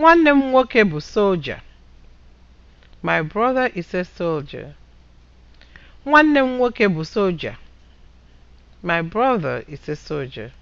Nwanne m nwoke bụ soja. My brother is a soldier. My brother is a soldier.